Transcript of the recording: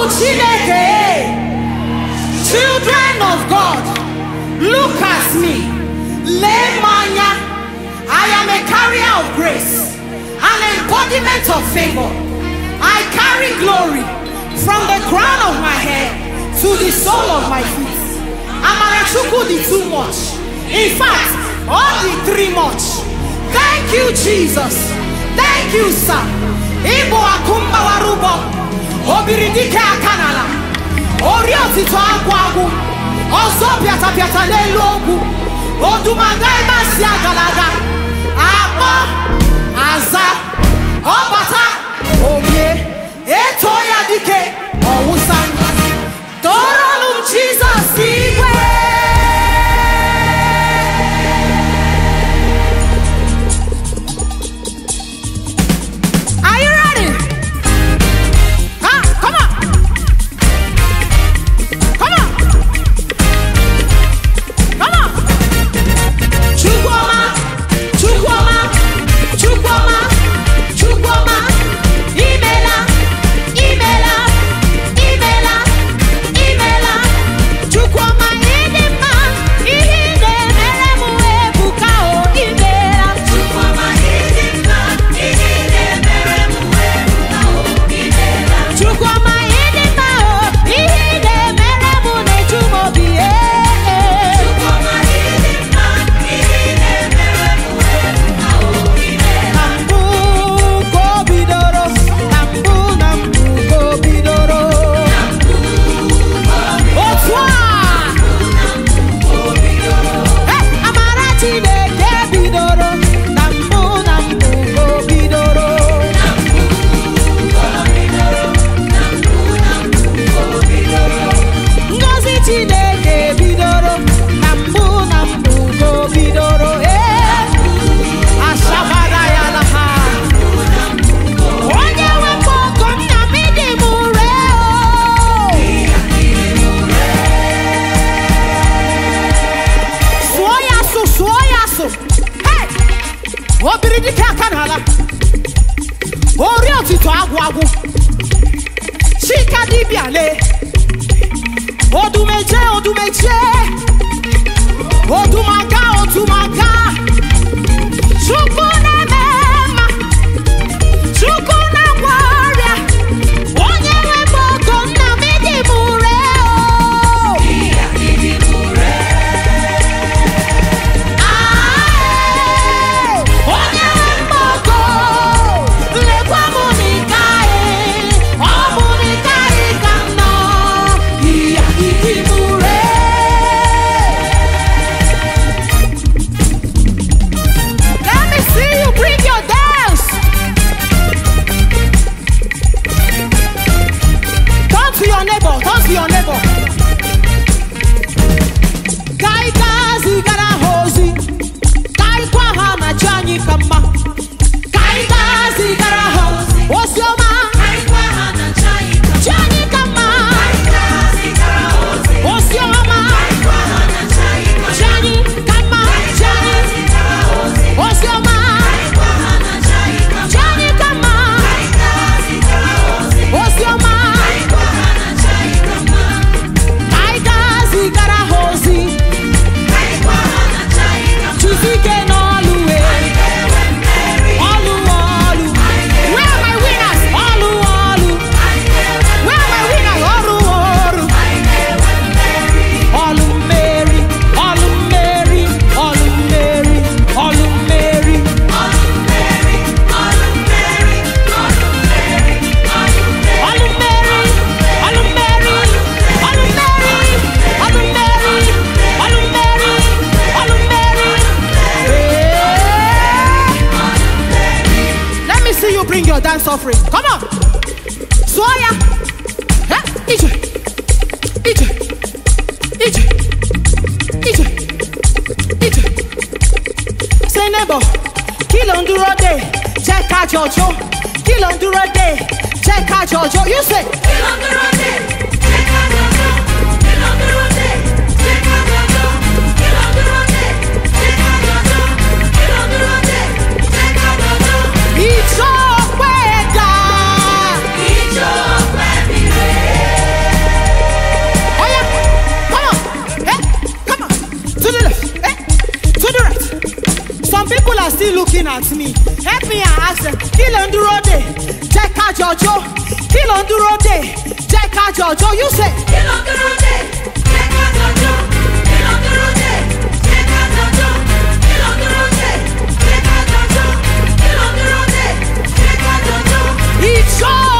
Eh? Children of God, look at me. manya, I am a carrier of grace, an embodiment of favor. I carry glory from the crown of my head to the sole of my feet. I'm an the too much. In fact, only three much. Thank you, Jesus. Thank you, sir. Ibo akumba warubo. Obiridika atitɔ agu agu ɔzɔ piatapiata n'elu ogwu odumaga ebe si agalaga akpɔ aza. so obìnrin ní kẹ́kẹ́ náà la orí òtítọ́ agwagu ṣíkà dìbìàlẹ̀ odùmẹ̀jẹ̀ odùmẹ̀jẹ̀ odùmàgà. your dance offering. Come on. Swoya. Huh? Ije. Ije. Ije. Ije. Ije. Say neighbor, Kill on ń dúró dè, jẹ́ ká jọjọ́. Kí ló ń day, dè, jẹ́ ká jọjọ́. You say. Kill on ń dúró dè. still looking at me help me and ask them kí ló ń dúró dè jẹ́ ká jọjọ́ kí ló ń dúró dè jẹ́ ká jọjọ́ you say. Kill on the road, dè jẹ́ ká jọjọ́ kí ló ń dúró dè jẹ́ jọjọ́ kí ló ń dúró dè jẹ́ jọjọ́ kí ló